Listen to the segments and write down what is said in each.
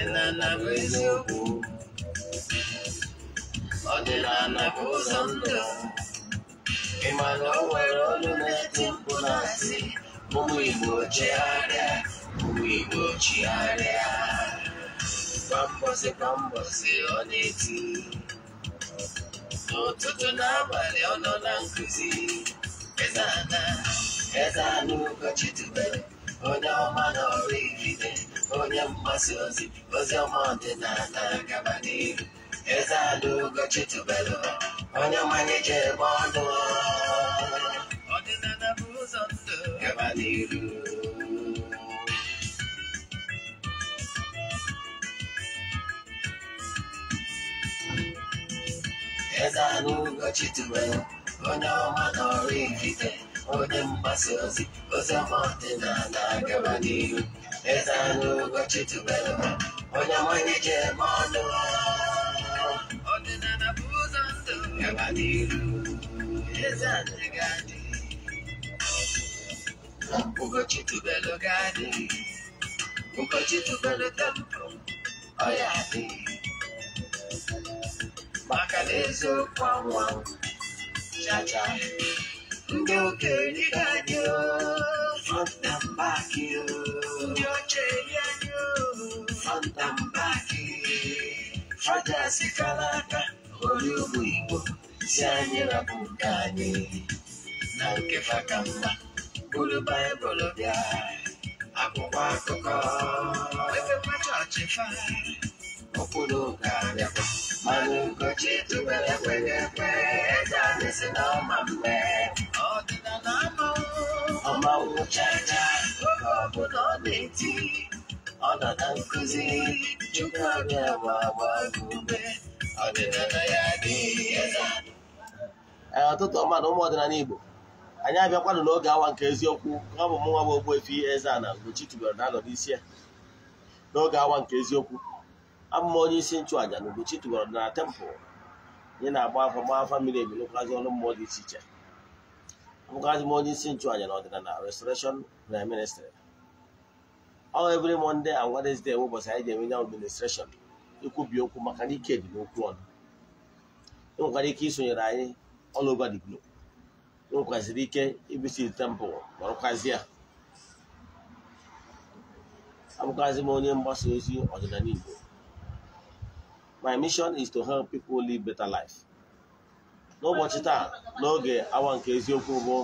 ọdịnala bụ eziokwu ọdịnala bụ ụzọ ndụ ịma na o nwere olu na-eti mkpu na-asị ụmụ Igbo chegharịa ụmụ Igbo chigharịa kwa mbọsị kwa ọ na-eti n'ụtụtụ n'abalị ọ nọ na nkụzi Eze Ada, Eze Ana Ugochi tubelu onye ọma na ọrụ igide Olha maciose, você é uma antenada acabadinho. Exato, gotito belo. Olha o manager bordo. Ordenada abusando. Cavaleiro. Exato, gotito belo. Olha o mano ezanu gochitubelo onyamonike mọnụ je bụ ụzọ ndụ gaba n'iru ezanu gadi belo gadi ugochitubelo tempo ọya dị maka na eziokwu cha cha, ndị ni gadi Fatambaki nyocheye nyo Fatambaki Fata sikalaka oli obwingo syanyira bunganye nankefakamba bulu bayibolo bya akwụkwọ akụkọ ọ ọ nọ ma ya ee ụtụtụ mmadụ ụmụ ọdịnala Igbo anyị abịakwanụ n'oge awa nke eziokwu ka ọ bụ nwa bụ Ogbuefi Eze-Ana Ugochi tubelu na-anọ n'isi ya n'oge awa nke eziokwu abụ onye isi nchụàja na Ugochi tubelu na tempụl anyị na-agba afọ gba afọ mmiri ebi ọnụ mmụọ dị iche iche abụkwazi m onye isi nchụàjà na ọdịnala restoration prime ministry ọ every Monday and Wednesday ụbọchị anyị ji enwe nye administration ikwubi okwu maka na ike dị n'okwu ọnụ ị nwekwara ike isonyere anyị all over di globe ị nwekwaziri ike ibisit temple ọrụkwazi a abụkwazi m onye mgbasa ozi ọdịnala Igbo my mission is to help people live better life n'ụbọchị taa n'oge awa nke eziokwu bụ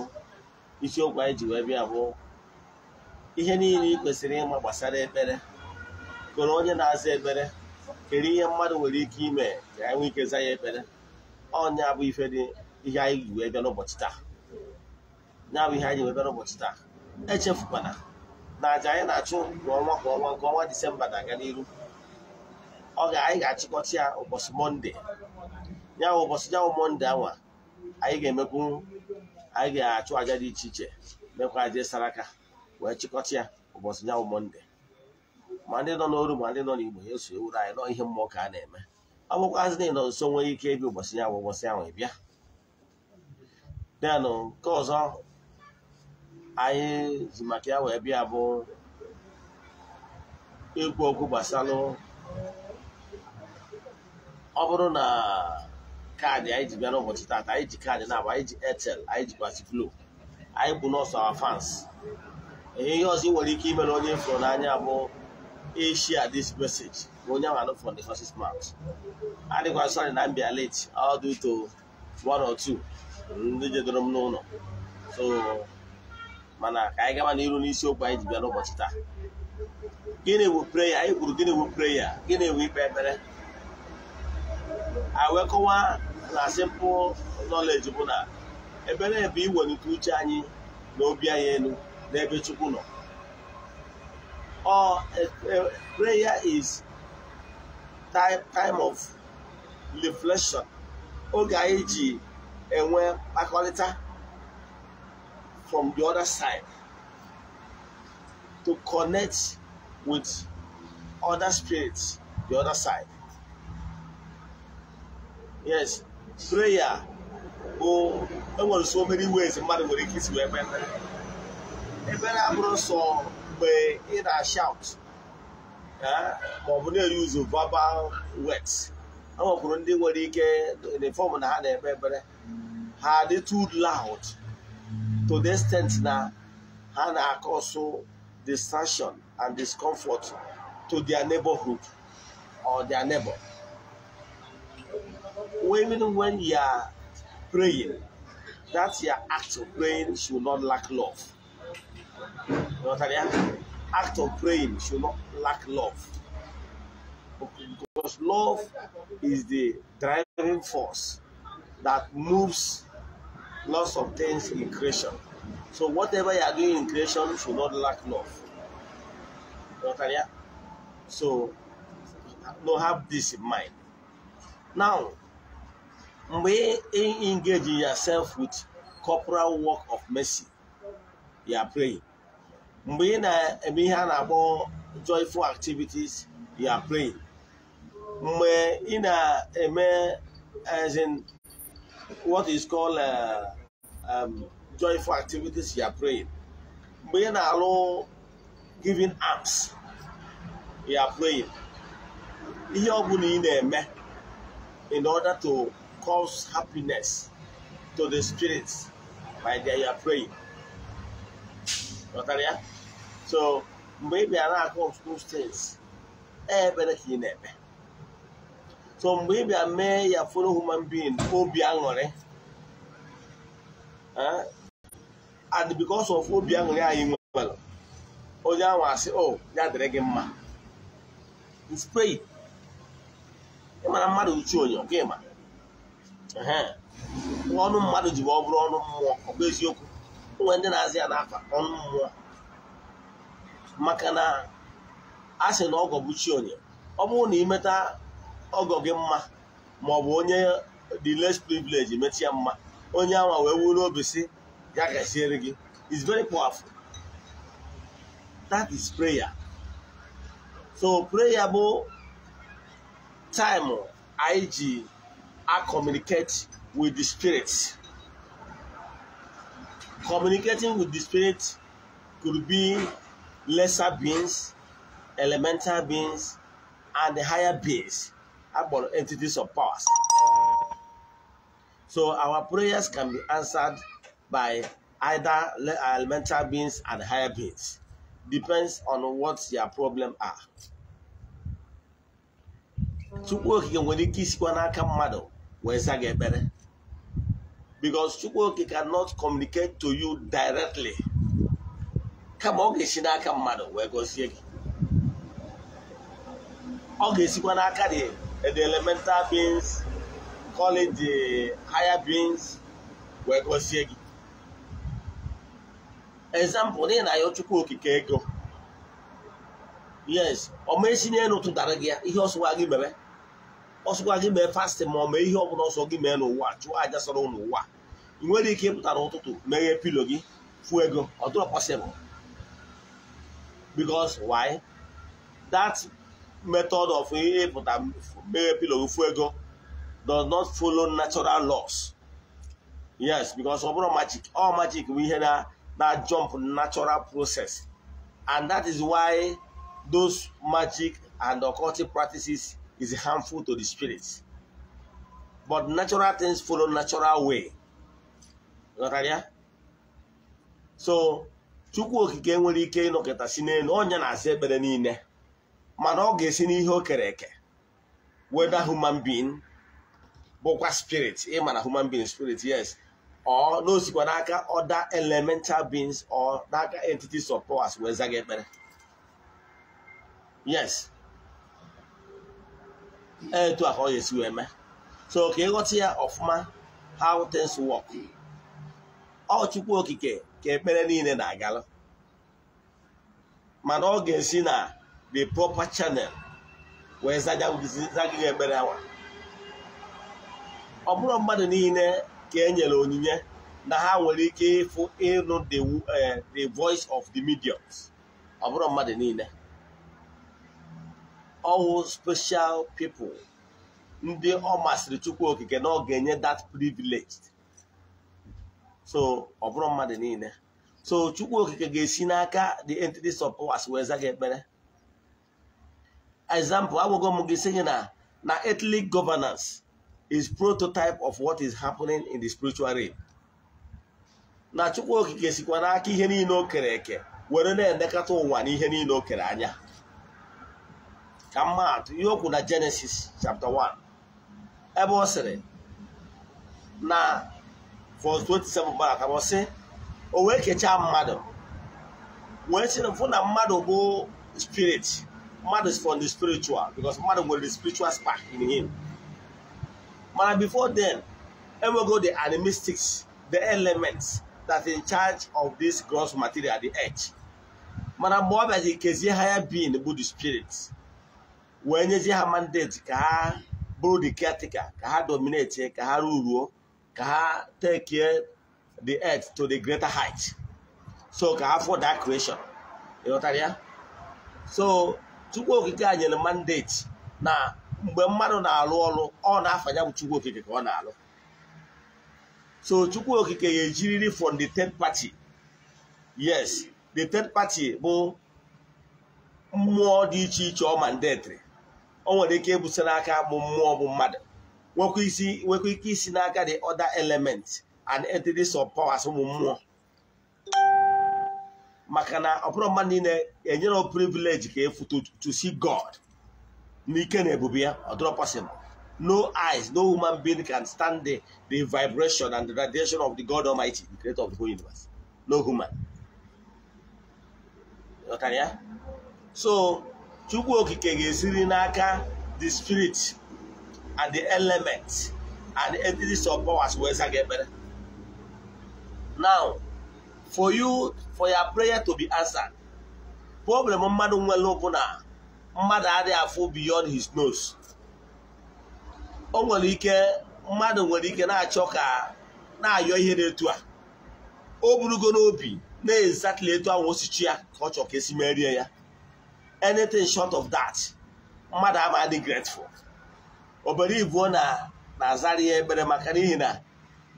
isiokwu anyị ji wee bịa bụ ihe niile ị kwesịrị ịma gbasara ekpere kere onye na-aza ekpere kere ihe mmadụ nwere ike ime ka anyị e nwee ike za ya ekpere ọnya bụ ife dị ihe anyị ji wee bịa n'ụbọchị taa nya bụ ihe anyị wee bịa n'ụbọchị taa echefukwana na aja anyị na-achụ kwa ọnwa ọnwa nke ọnwa disemba na-aga n'iru ọ ga anyị ga achịkọcha ya ụbọchị mọnde ya bụ ụbọchị ya bụ mọnde awa anyị ga-emekwu anyị ga-achụ aja dị iche iche mekwa aja saraka wee chịkọta ya ụbọchị ya bụ mọnde ma ndị nọ n'oru ma ndị nọ n'igbo ya eso ewuru anyị nọ ihe mmụọ ka a na-eme ọ bụkwazị na ịnọ nso nwee ike ịbịa ụbọchị ya bụ ụbọchị ahụ ịbịa denụ nke ọzọ anyị ji maka ya wee bịa bụ ikwu okwu ọ bụrụ na kaadị anyị ji bịa n'ụbọchị taata anyị ji kaadị na-abụ anyị ji etel, anyị ji basiflo anyị bụ nọọsụ awa fans ihe ihe ọzọ ị nwere ike imere onye fụrụ n'anya bụ ishia this message bụ onye ahụ from the first mouth adịkwa sorry na mbịa late all due to one or two ndị jedoro m n'ụlọ so mana ka anyị gaba n'iru n'isiokwu anyị ji bịa n'ụbọchị taa gịnị bụ preya anyị kwuru gịnị bụ preya gịnị bụ ikpe ekpere awekọwa na simple knowledge bụ na ebe na iwelite uche anyị na obi anyị elu n'ebe Chukwu nọ ọ uh, prayer is time, time of reflection oge anyị ji enwe mkpakọrịta from the other side to connect with other spirits the other side yes Prayer bụ enwere so many ways mmadụ nwere ike isi wee mee ekpere ebere abụrụ so mgbe ị na-shout ma ọ bụ na-eri ụzọ verbal words ndị nwere ike the na ha na-ekpe ekpere ha dị too loud to the extent na ha na-akọsụ distraction and discomfort to their neighborhood or their neighbor. even when you are praying, that your act of praying should not lack love. You know what I mean? Act of praying should not lack love. Because love is the driving force that moves lots of things in creation. So whatever you are doing in creation should not lack love. You know what I mean? So, now have this in mind. Now, mgbe ị engage yourself with corporal work of mercy ya pray mgbe ị na-eme ihe a na-akpọ joyful activities ya pray mgbe ị na-eme as in what is called uh, um, joyful activities ya pray mgbe ị na-alụ giving alms ya pray ihe ọ bụla ị na-eme in order to cause happiness to the spirits, my dear, you are praying. Ghọtara So mgbe ị bịara akụ those things, ebere ka ị na eme. So mgbe ị bịa mee ya foro human being obi aṅụrị. Eh? And because of obi aṅụrị anyị nwere, onye ahụ asị, o ya dịrị gị mma. It's pray. Ị mara mmadụ uchu onyo, gị ọnụ mmadụ ji ọ bụrụ ọnụ mmụọ ọ bụ eziokwu onwe ndị na-azị ya n'afa ọnụ mmụọ maka na a sị na ọgọ bụ chi onye ọ bụrụ na imeta ọgọ gị mma ma ọ bụ onye dị les privilege metụ ya mma onye awa wee wuru obi si ya gaziere gị is very powerful that is prayer so prayer bụ taịmụ anyị ji I communicate with the spirit. Communicating with the spirit could be lesser beings, elemental beings, and the higher beings, about entities of powers. So our prayers can be answered by either elemental beings and higher beings. Depends on what your problem are. Chukwu okike nwere ike isikwa n'aka mmadụ wee za gị ekpere because Chukwu Oke cannot communicate to you directly kama ọ ga-esi n'aka mmadụ wee gozie gị ọ ga-esikwa n'aka dị the elemental beings calling the higher beings wee gozie gị example n'ihi na ayọ Chukwu Okike ego yes ọ ma esi n'elu tụtara gị ya ihe ọsụwa gị mere ọsọkwa gị mee fasting ma ọ mee ihe ọbụla ọsọ gị mee n'ụwa chụọ aja sọrọ n'ụwa ị nwere ike ịpụta n'ụtụtụ meghe pilo gị fụọ ego ọ dịrọ possible because why that method of ịpụta meghe pilo gị fụọ ego does not follow natural laws yes because ọ bụrụ magic all magic bụ ihe na na jump natural process and that is why those magic and occultic practices is harmful to the spirit. But natural things follow natural way. So Chukwu okike nwere ike ịnọkịta si n'elu onye na-asa ekpere niile mana ọ ga-esi n'ihe o kere eke weda human being bụkwa spirit ma na human being spirit yes or n'osikwa n'aka other elemental beings or n'aka entities of powers wee zaga ekpere yes etu a ka ọ ga-esi wee mee so ka ịghọta ya ọfụma how things work ọ okike ka ekpere niile na agalụ mana ọ ga-esi na the proper channel wee zagịghị ekpere awa ọ bụrụ mmadụ niile ka enyere onyinye na ha nwere ike ịfụ ịnụ eh, the voice of the mediums ọ bụrụ mmadụ niile ọwụ special people ndị ọ masịrị chukwu okike na ọ ga-enye that privilege so ọ bụrụ mmadụ niile so chukwu okike ga-esi n'aka the entities of powers wee za gị ekpere example agwago m gị sị gị na na ethnic governance is prototype of what is happening in the spiritual realm na chukwu okike sikwa n'aka ihe niile o kere eke were na-elekọta ụwa na ihe niile o kere anya ka mma atụ ihe okwu na jenesis chapter 1 ebe ọ sịrị na verse 27 gbara ka ọ sị o wee kechaa mmadụ wee sị na mfụ na mmadụ bụ spirit mmadụ is from the spiritual because mmadụ nwere the spiritual spark in him mana before then enwego the animistics the elements that in charge of this gross material the earth mana mgbe ọ bịazi kezie higher being bụ the spirit wee nyezi ha mandate ka ha bụrụ the caretaker ka ha dominate ka ha ruruo ka ha take the earth to the greater height so ka ha for that creation ịghọtara ya so chukwu okike a nyere mandate na mgbe mmadụ na-alụ ọrụ ọ na afanya bụ chukwu okike ka ọ na-alụ so chukwu okike ga-ejiriri from the third party yes the third party bụ mmụọ dị iche iche ọ mandetri o nwere ike ibute n'aka bụ mmụọ bụ mmadụ nwekwa ike isi n'aka the other element and entities of powers ụmụ mmụọ maka na ọpụrụ mmadụ niile enyere privilege ka efu to see God n'ike na ebube ya ọ possible no eyes no human being can stand the, the vibration and the radiation of the God Almighty the creator of the whole universe no human so chukwu okike ga-esiri n'aka the spirit and the element and the entities of powers wee za gị ekpere now for you for your prayer to be answered problem mmadụ nwere bụ na mmadụ adịghị afọ beyond his nose o nwere ike mmadụ nwere ike na-achọ ka na-ayọ ihe na-etu a o burugo n'obi na-ezatụla etu ahụ osichi ya ka ọ chọ ka esi merie ya anything short of that mmadụ ama adị grateful obere ibuo na na-azara ya ekpere maka n'ihi na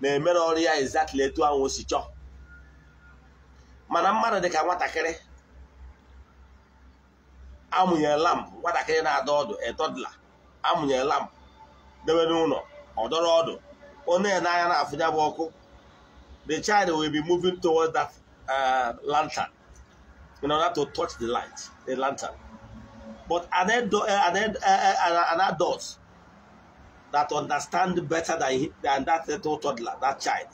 na-emere ọrụ ya exactly etu ahụ si chọọ mana mmadụ dị ka nwatakịrị amụnyere lampụ nwatakịrị na-adọ ọdụ etọdụla amụnyere lampụ debe n'ụlọ ọdọrọ ọdụ onye n'anya na-afụnya bụ ọkụ the child will be moving towards that uh, lantern in order to touch the light, the lantern. But are there, eh, are there, eh, eh, are there adults that understand better than, than that little toddler, that child?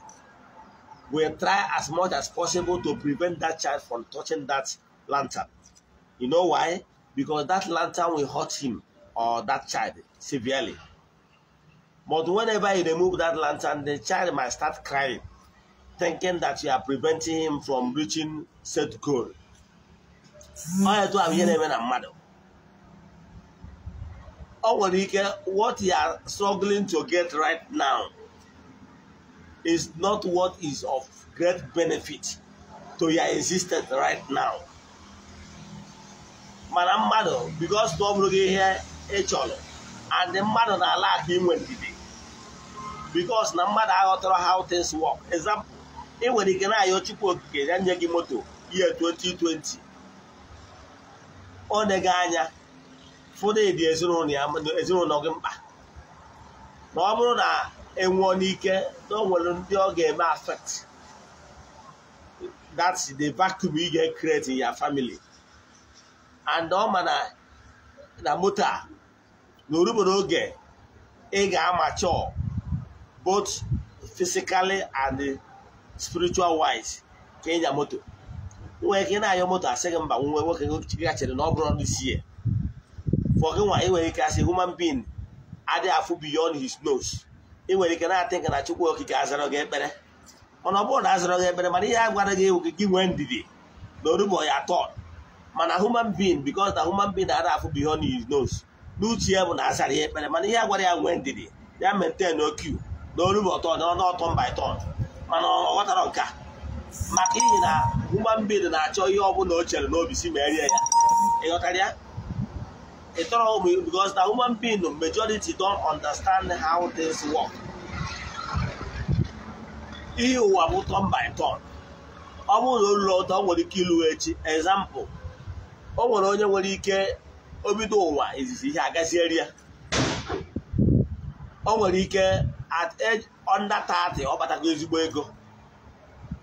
We'll try as much as possible to prevent that child from touching that lantern. You know why? Because that lantern will hurt him or that child severely. But whenever you remove that lantern, the child might start crying, thinking that you are preventing him from reaching said goal. ọya etu ahụ ihe na-eme na mmadụ ọ nwere ike what you are struggling to get right now is not what is of great benefit to your existence right now mana mmadụ because na ọ bụrụ gị ihe ị and and mmadụ na-ala aka inwe ndidi because na mmadụ aghọtara how things work example ị nwere ike na-ayọ chukwu okike ya nye gị moto ihe 2020 ọ dịghị anya ụfọdụ dị ezinụlọ gị mkpa na ọ bụrụ na enwụọ n'ike na onwere ndị ọ ga-eme affect that's the vacuum ị ga ekretị in your family and ọ ma na moto a na oge ị ga-amacho both physically and spiritual wise ka ịnya moto nwere ike na-anyọ moto asị gị mba nwe nwoke gị chere na ọ bụrụ ọrụ isi ya fọ nwa enwere ike asị human being adị afụ beyond his nose ị ike na-atị nke na chukwu okike azara gị ekpere mana ọ bụrụ na azara gị ekpere mana ihe a gwara gị gị nwee ndidi na orugbo ya atọ mana human being because na human being adị afụ beyond his nose n'uche ya bụ na azara ya ekpere mana ihe a gwara ya nwee ndidi ya maintain okiu na orugbo ọtọ na ọnụ ọtọ mba ịtọ mana ọ ghọtara nke a maka ihi na nwa mgbidi na-achọ ihe ọbụla o chere n'obi si ma erie ya ịghọtara ya ịtọrọ ụmụ because na human being majority don't understand how things work ihe ụwa bụ turn by turn ọ bụrụ na ụlọ ụtọ nwere ike ịlụ echi example o nwere onye nwere ike obido ụwa izizi ihe agazieri ya o nwere ike at age under 30 ọ batago ezigbo ego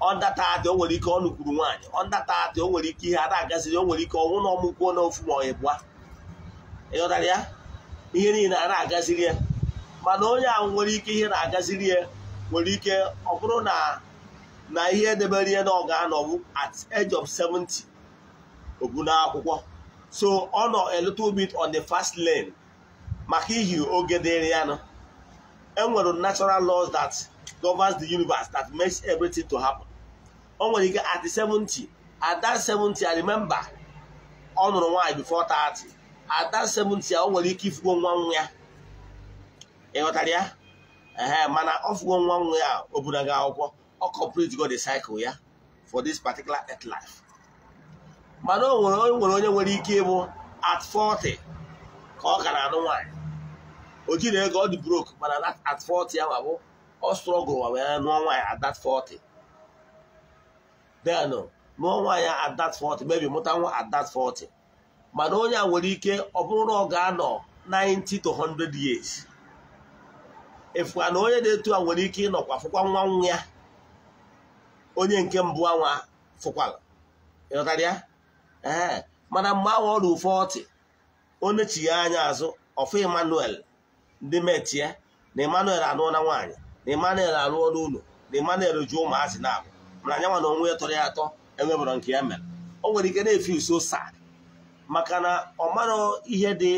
ọndatata o nwere ike ọ nụkwuru nwaanyị ọndatata o nwere ike ihe ada agaziri o nwere ike ọnwụ na ọmụkwuo n'ofu ma ọ ịbụa ịghọtara ya ihe niile a na-agaziri ya mana onye ahụ nwere ike ihe na-agaziri ya nwere ike ọ bụrụ na na ihe edebere ya na ọ ga at age of 70 obu n'akwụkwọ so ọ nọ a little bit on the first lane maka ihi oge dịrị ya nọ enwere natural laws that governs the universe that makes everything to happen. o nwere ike at 70 at that 70 I remember ọ nụrụ nwaanyị before 30 at that 70 o nwere ike ifugo nwa nwa ya ịghọtara ya mana ọ fugo nwa nwa ya o bunaga akwụkwọ ọ complete go the cycle ya for this particular earth life mana o nwere onye nwere ike ịbụ at 40 ka ọ na anụ nwaanyị o jiri ego ọ dị broke mana at 40 ya ma bụ ọ strọgụl wa wee nụọ nwaanyị at that 40 then mụọ nwa adat 40 maybe mụta nwa at 40 mana onye a nwere ike ọ bụrụ na ọ ga-anọ 90 to 100 years na onye na-etu a nwere ike ịnọkwa fụkwa nwa nwa ya onye nke mbụ anwa fụkwara ịghọtara ya ee mana mgbe ahụ ọ ruru 40 onye anya azụ ọfụ emmanuel ndị metie na emmanuel anụọla nwaanyị na emanuel alụọla ụlọ na emanuel ju ụmụazị na-abụ na anyanwa na onwe ya tọrọ ya atọ enwebụrụ nke ya mere o nwere ike na efe uso sad maka na ọ mara ihe dị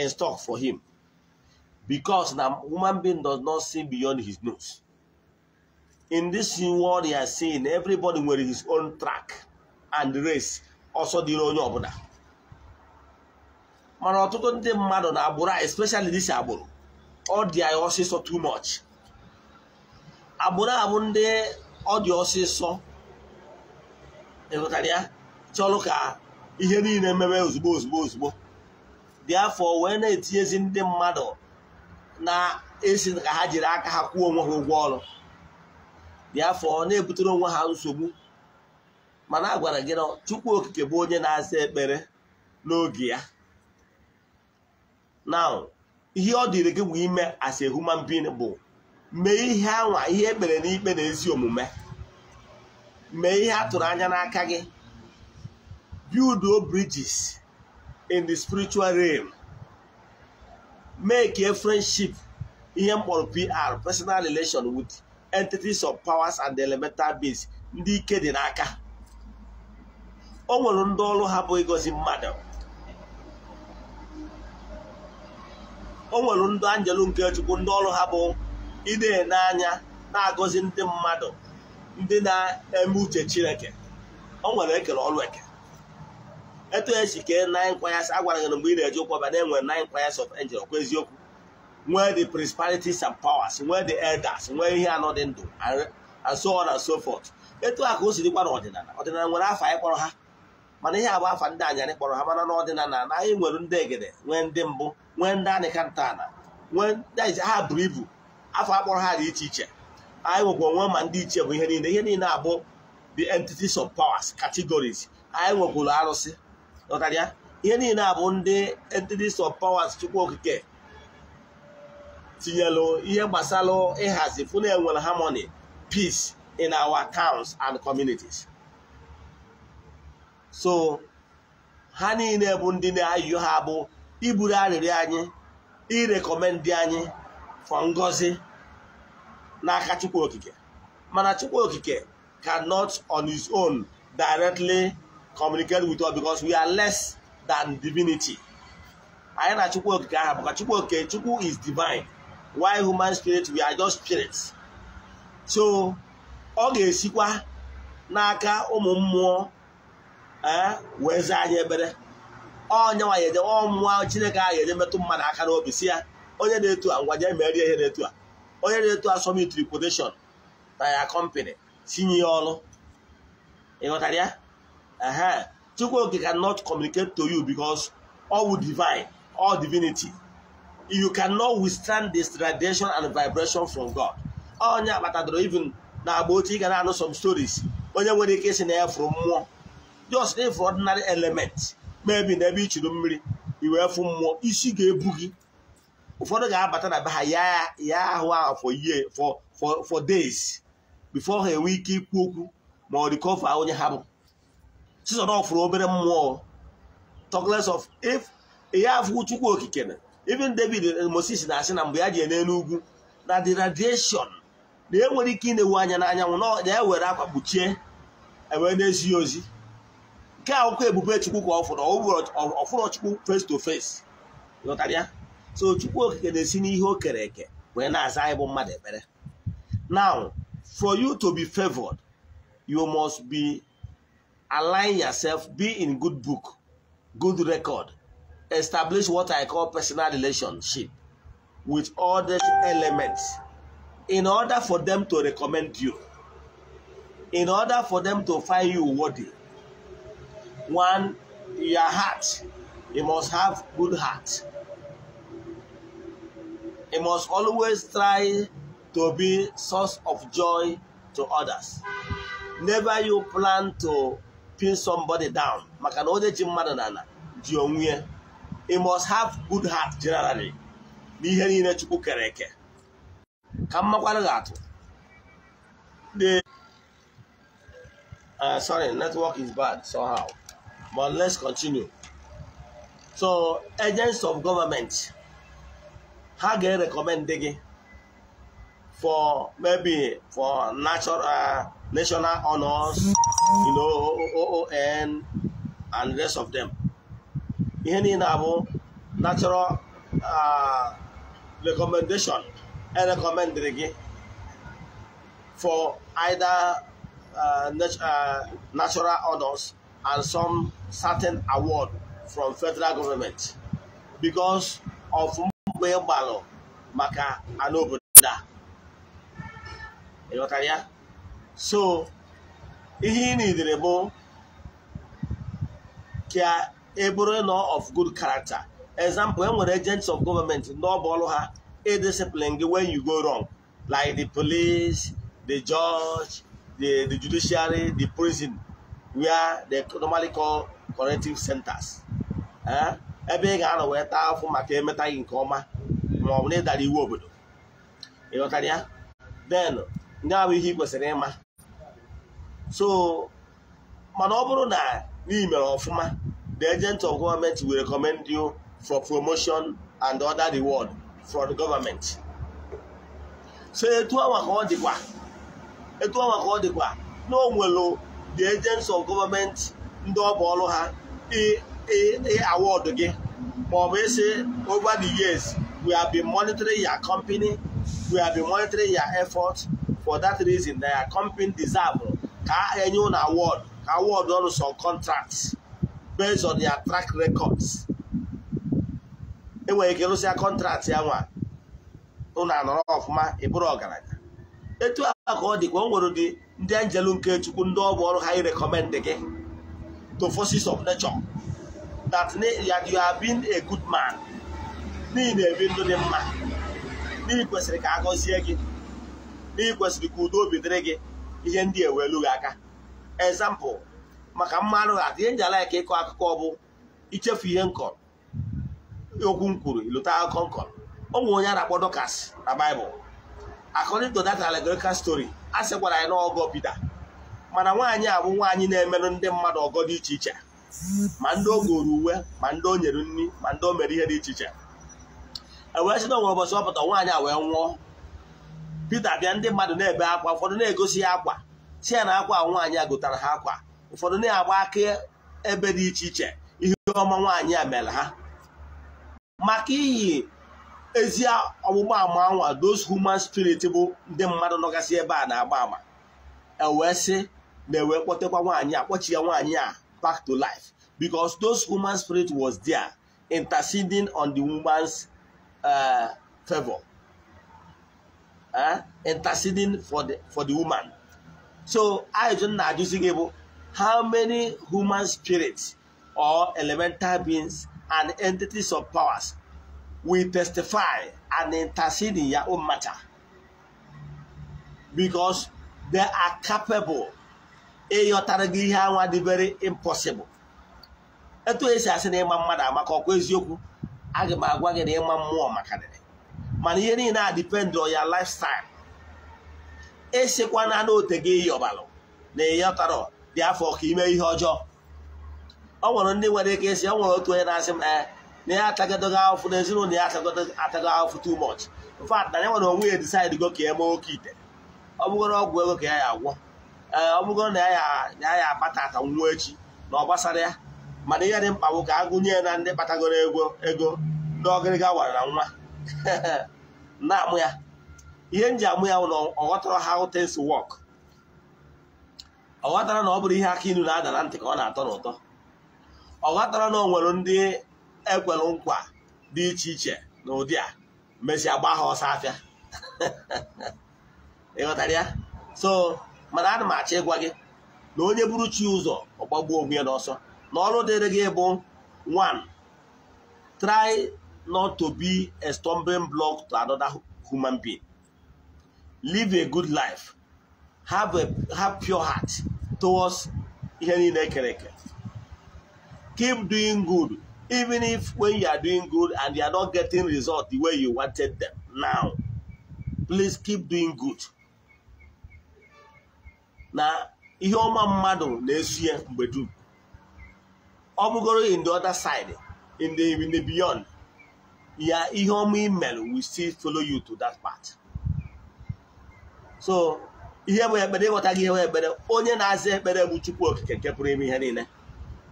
in stock for him because na human being does not see beyond his nose in this world you are seeing everybody nwere his own track and race ọsọ dịrị onye ọbụla mana ọtụtụ ndị mmadụ na agbụrụ especially this agbụrụ ọ dị anyị ọsịsọ too much agbụrụ a bụ ndị ọ dị ọsịsọ ịghọtara ya chọrọ ka ihe niile mebe ozugbo ozugbo ozugbo dị afọ wee na-etinyezi ndị mmadụ na-esi ka ha jiri aka ha kwụọ onwe ha ụgwọ ọrụ dị afọ na-ebutere onwe ha nsogbu mana a gwara gị na Chukwu Okike bụ onye na-aza ekpere n'oge ya na ihe ọ dịrị gị bụ ime as human being bụ mee ihe anwa ihe ekpere n'ikpe na ezi omume mee ihe a tụrụ anya n'aka gị build bridges in the spiritual realm make a friendship ihe mkpọrọ PR personal relation with entities of powers and elemental beings ndị ike dị n'aka o nwere ndị ọrụ ha bụ ịgọzi mmadụ o nwere ndị anjelu nke chukwu ndị ọrụ ha bụ ịdee n'anya na-agọzi ndị mmadụ ndị na-eme uche chineke ọ nwere ekele ọrụ eke etu esi kee nine choirs agwara gị mgbe ị na-eje ụkwaba na enwere nine choirs of angel ọkwa eziokwu nwee the principalities and powers nwee the elders nwee ihe anọ dị ndụ and so on and so forth etu a ka o si dịkwa n'ọdịnala ọdịnala nwere afa anyị kpọrọ ha mana ihe abụ afa ndị anyarị kpọrọ ha mana n'ọdịnala na anyị nwere ndị egede nwee ndị mbụ nwee ndị anịka ntọala nwee ha buru ibu afọ akpọrọ ha dị iche iche anyị nwekwa onwe ma ndị iche bụ ihe niile ihe niile abụ the entities of powers categories anyị nwekwuru arụsị ya ihe niile abụ ndị entities of powers chukwu okike tinyelu ihe gbasara ịhazi fụ na enwere harmony peace in our towns and communities so ha niile bụ ndị na-ayụ ha bụ iburu arịrịọ anyị irekomendị anyị for ngọzi n'aka chukwu okike mana chukwu okike cannot on his own directly communicate with us because we are less than divinity anyị na chukwu okike aha bụ chukwu okike chukwu is divine while human spirit we are just spirits so ọ ga-esikwa n'aka ụmụ mmụọ eh, wee zaa anyị ebere ọ nyanwa ya ede ọ Chineke ahụ ga-eje metụ mmadụ aka n'obi si ya onye na-etu a ngwa jee merie ihe na-etu a onye na-etu asọmpi tripodeshọn na ya kọmpanị tinye ya ọrụ ịghọtara ya Chukwu cannot communicate to you because all divine all divinity you cannot withstand this radiation and vibration from God onye akpatadoro even na agba otu ị ga na-anụ some stories onye nwere ike isi na ya fụrụ mmụọ just if ordinary element maybe na ebe i churu mmiri i wee fụ mmụọ isi ga-ebu gị ụfọdụ ga-abata na be ha ya ahụ ahụ for year for days before ha enwe ike ikwu okwu ma ọ dị onye ha bụ chizọrọfụrụ obere mmụọ talkless of if ihe afụ chukwu okike na even david moses na-asị na mgbe ya ji ene n'ugwu na the radiation na enwere ike ịna-ewu anya n'anyanwụ na ewere akwa kpuchie ewee na-ezighị ozi nke akwụkwọ ebube chukwu ka ọ fụrụ ọfụrụ chukwu face to face ya so chukwu okike na-esi n'ihe o kere eke wee na-aza anyị bụ mmadụ ekpere now for you to be favored you must be align yourself be in good book good record establish what i call personal relationship with all these elements in order for them to recommend you in order for them to find you worthy one your heart you must have good heart It must always try to be source of joy to others. Never you plan to pin somebody down. maka na onye ji mmadụ na ji onwe ya. must have good heart generally n'ihe niile Chukwu kere eke. Ka mmakwanụ ga-atụ. sorry network is bad somehow but let's continue. So agents of government. ha ga-erekọmend gị for maybe for natural uh, national honors you know OON and the rest of them ihe niile abụ natural uh, recommendation? recommendation erekọmendịrị gị for either uh, uh, natural honors and some certain award from federal government because of mgbe ị gbalụ maka ala obodo a ịghọtara ya so ihe ị na nidere bụ ka e bụrụ nọ of good character example e nwere agents of government n'ọbụ ọrụ ha e discipline gị when you go wrong like the police the judge the, the judiciary the prison where they normally corrective centers eh? ebe ị ga-anọ wee taa afụ maka emeta gị nke ọma ma ọ bụ na ịdara iwu obodo ịghọtara ya den ndị ahụ ihe ị kwesịrị ịma so mana ọ bụrụ na ị ọfụma the agent of government will recommend you for promotion and other reward from the government so etu anwa ka ọ dịkwa etu anwa ka ọ dịkwa na o the agents of government ndị ọ ọrụ ha Eh, eh, award gị maọbụ ese over the years we have been monitoring your company we have been monitoring your effort for that reason na your company deserve ka enye ụlọ award ka award ọnụ some contracts based on your track records enwere ike rụsịa contract ya nwa ụlọ anọrọ ọfụma ịbụrụ ọgaranya etu a ka ọ dịkwa o nwere ụdị ndị anjelu nke chukwu ndị ọ bụ ọrụ ha ịrekọmendị gị to forces of nature that you have been a good man n'ihi na-ebi ndụ dị mma n'ihi kwesịrị ka a gọzie gị n'ihi kwesịrị ka udo obi dịrị gị ihe ndị ewelu gị aka example maka mmanụ ha ihe nji alaika ịkọ akụkọ ọ bụ ichefu ihe nkọrọ okwu m kwuru ilụta akụkọ nkọrọ ụmụ onye a na Dọkas na Baịbụl according to that allegorical a sị gwara anyị na ọgọ Pita mana nwaanyị a bụ nwaanyị na-emerụ ndị mmadụ ọgọ dị iche iche ma ndị o goro uwe ma ndị o nyere nri ma ndị o mere ihe dị iche iche ewee si na ụbọchị nwaanyị a wee nwụọ Pita bịa ndị mmadụ na-ebe akwa ụfọdụ na-egosi ya akwa si ya na akwa nwaanyị a gotara ha akwa ụfọdụ na-agba aka ebe dị iche iche ihe ọma nwaanyị a mere ha maka iyi ezi ọgbụgba ama anwa those human spirit bụ ndị mmadụ nọgasị ebe a na-agba ama ewee si na ewee kpọtekwa nwaanyị a kpọchi ya nwaanyị a back to life because those human spirit was there interceding on the woman's uh, favor uh, interceding for the for the woman so i don't know using able how many human spirits or elemental beings and entities of powers will testify and intercede in your own matter because they are capable ịghọtara gị ihe anwa dị very impossible etu esi asị na ịma mmadụ amaka ọkwa eziokwu aga m agwa gị na ịma mmụọ maka dịrị mana ihe niile a dipendị ọ ya lifestyle esikwana n'ote gị ịyọbalụ na ịghọtara dị afọ ka ime ihe ọjọọ ọ nwere ndị nwere ike esi ọ nwere otu onye na-asị m na ya atagodogo ahụfụ na ezinụlọ ya atago ahụfụ too much in na ya nwere onwe ya decide go ka ya mee oke ite ọ bụgoro ọgwụ ego ka ya ya agwọ ee eh, ọ bụgo na ya ya akpata ka nwa echi na ọ gbasara ya mana ihe dị mkpa bụ ka agụnye na ndị kpatagoro ego ego ndị ọgịrịga wara na nwa na-amụ ya ihe m ji amụ ya bụ na ọ ha how wọk ọghọtara ọ na ọ bụrụ ihe aka inu na-ada na ntị ka ọ na-atọ n'ụtọ ọ ghọtara na ọ nwere ndị ekwere nkwa dị iche iche na ụdị a mesịa gbaa ha ọsọ afịa ịghọtara ya so mana a m achọ ịgwa gị na onye buru chi ụzọ ọgbagbuo onwe ya n'ọsọ na ọrụ dịrị gị bụ one try not to be a stumbling block to another human being live a good life have a have pure heart towards ihe niile ekere eke keep doing good even if when you are doing good and you are not getting result the way you wanted them now please keep doing good na ihe ọma mmadụ na-esu ya mgbe dum ọ bụgoro in the other side in the in the beyond ya ihe ọma email will still follow you to that part so ihe bụ ekpere ịghọta gị ihe bụ ekpere onye na-aza ekpere bụ chukwu okike nke pụrụ ime ihe niile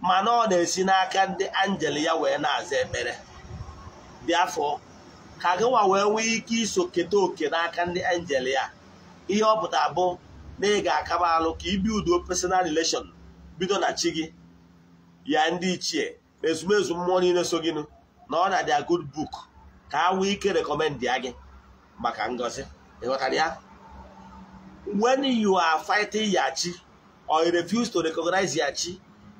mana ọ na-esi n'aka ndị anjel ya wee na-aza ekpere dị afọ ka gịnwa wee nwee ike iso keta oke n'aka ndị anjel ya ihe ọ pụta bụ na ị ga-akaba alụ ka ibi udo personal relation bido na chi gị ya ndị ichie na ezumezu mmụọ niile so gịnụ na ọ na dia good book ka a nwee ike rekọmendị ya gị maka ngozi ịghọtara ya when you are fighting ya chi or you refuse to recognize ya chi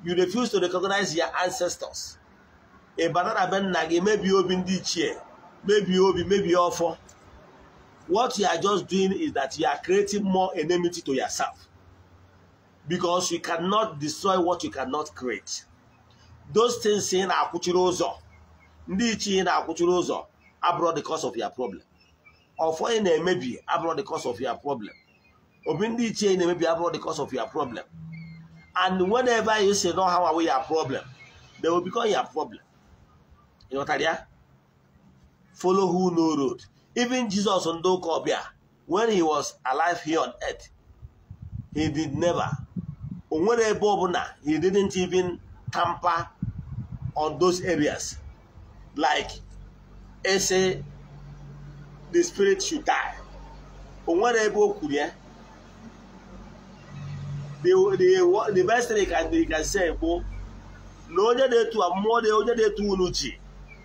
you refuse to recognize your ancestors ị banana be nna gị mebie obi ndị ichie mebie obi mebie ọfọ what you are just doing is that you are creating more enmity to yourself because you cannot destroy what you cannot create. Those things ị na-akwụchiri ụzọ ndị ichie na-akwụchiri ụzọ abụrọ the cause of your problem. Ọfọ ị na-emebi abụrụ the cause of your problem. Obi ndị ichie ị na-emebi abụrọ the cause of your problem. And whenever you say no how are your problem, they will become your problem. Ịghọtara ya? Follow who no road. Even Jesus on Dokobia, when he was alive here on earth, he did never. ebe He didn't even tamper on those areas. Like, ese the spirit should die. The, the, the best thing he can, he can say, na onye na-etu mmụọ onye na-etu unu ji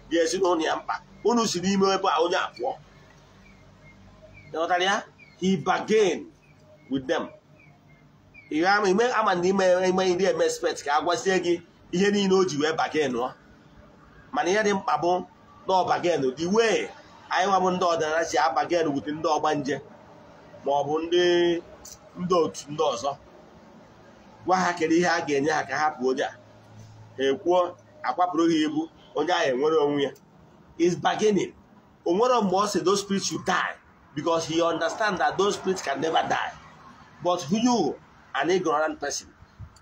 ga-esi n'ụlọ ya mkpa unu si n'ime ebe a onye abụọ ịghọtara ya he bargain with them ime ama na ime ime ndị eme expert ka a gwazie gị ihe niile o ji wee bargain ọ mana ihe dị mkpa bụ na ọ bargain the way anyị nwa bụ ndị ọdịnala si a bargain wute ndị ọgbanje ma ọ bụ ndị ndị otu ndị ọzọ gwa ha kere ihe a ga-enye ha ka ha onye a ha ekwuo akwapụrụ ha ibu onye ahụ enwere onwe ya is bargaining o nwere mgbe ọ si those spirits should die because he understands that those spirits can never die. But you, an ignorant person,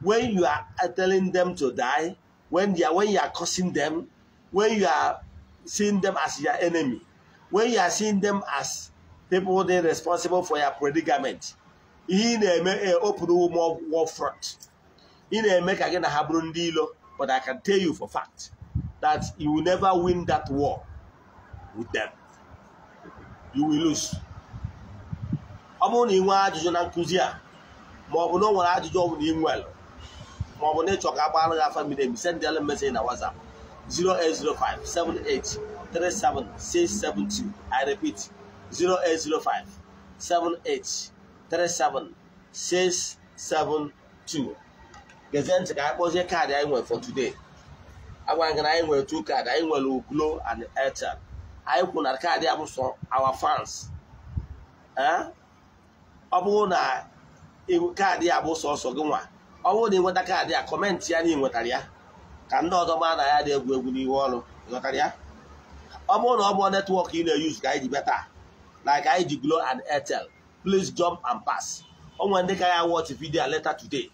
when you are telling them to die, when you are, when you are cursing them, when you are seeing them as your enemy, when you are seeing them as people they responsible for your predicament, in a eh, open war front. in a make again a habron deal. but I can tell you for fact that you will never win that war with them. you will lose ọ bụrụ na ị nwee ajụjụ na nkụzi a ma ọ bụ na o nwere ajụjụ ọ bụ na ị nwere ma ọ bụ na ịchọ ka agbaghara gị afa mmiri emi send sendịala mesej na WhatsApp 08057837672 I repeat 08057837672 gezie ntị ka anyị kpọzie kaadị anyị nwere for today agwara gị na anyị nwere two kaadị anyị nwere Glo and Airtel anyị kwuru na kaadị abụsọ awa fans ọ bụrụ na kaadị abụ sọsọ gị nwa ọ bụrụ na ịnweta kaadị a kọmentị ya na ị nwetara ya ka ndị ọzọ maa na ya dị egwu egwu n'ihu ọrụ ịghọtara ya ọ bụrụ na ọ bụ netwọk ị na-eyuz ka anyị ji beta na ka anyị ji Glo and Airtel please jump and pass o nwere ndị ka ya watch vidio aleta today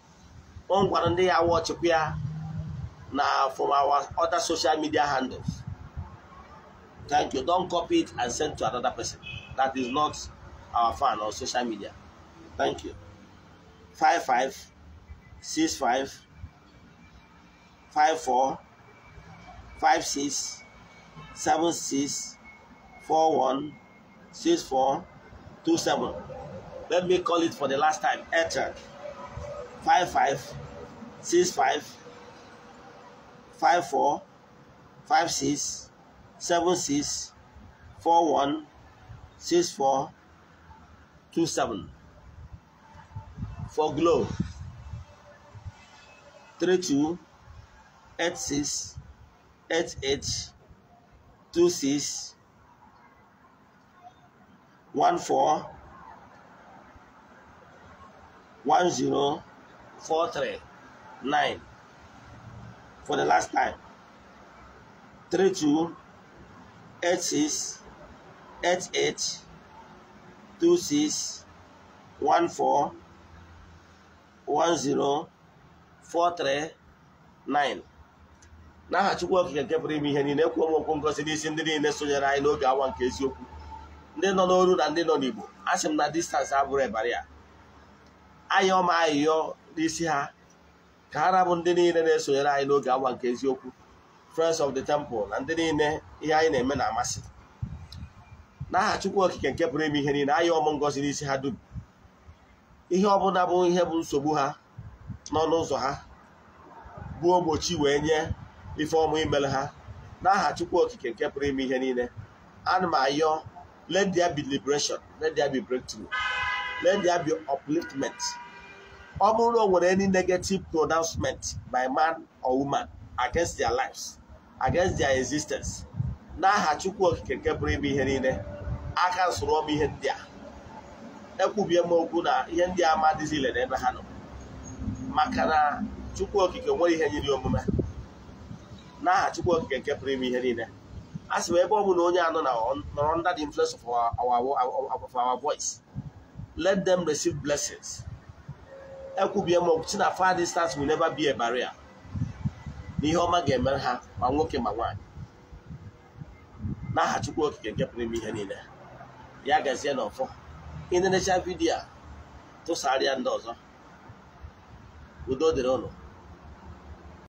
o nwekwara ndị ya watchkwa ya na from our other social media handles Thank you. don copy it and send to another person. That is not our fan or social media. Thank you. Five five six five five four Let me call it for the last time. Ether five five six five seven six four one six four two seven for glow three two eight six eight eight two six one four one zero four three nine for the last time three two eight six eight eight two six one four one zero four three nine n'aha Chukwu Okike nke pụrụ ime ihe niile kwuo m okwu ngozi n'isi ndị niile sonyere anyị n'oge awa nke eziokwu ndị nọ n'olu na ndị nọ n'Igbo a sị m na distansị abụrụ ịbara ya ọma ayịyọ n'isi ha ka ha rabụ ndị niile na-esonyere anyị n'oge awa nke eziokwu Friends of the Temple na ndị niile ihe anyị na-eme na-amasị n'aha Chukwu Okike nke pụrụ ime ihe niile anyị ọmụ ngozi n'isi ha dum ihe ọbụla bụ ihe bụ nsogbu ha n'ọnụ ụzọ ha bụ ogbochi wee nye ife ọmụ imere ha n'aha Chukwu Okike nke pụrụ ime ihe niile ana m ayọ let there be liberation let there be breakthrough let there be ọ bụrụ na o nwere any negative pronouncement by man or woman against their lives against their existence n'aha chukwu okike nke ime ihe niile aka nsụrụ ọbụ ihe ndị a ekwubie m okwu na ihe ndị a ma ile n'ebe ha nọ maka na chukwu okike nwere ihe nyiri omume n'aha chukwu okike nke pụrụ ime ihe niile a sị m ebe ọ bụla onye anọ na nọrọ under the influence of our voice let them receive blessings ekwubie m okwu si na far distance will never be a barrier na ihe ọma ga-emere ha ma nwoke ma nwaanyị n'aha Chukwu Okike nke pụrụ ime ihe niile ya gazie na ọfọ ịnenecha vidiyo a tụsara ya ndị ọzọ udo dịrị ụlọ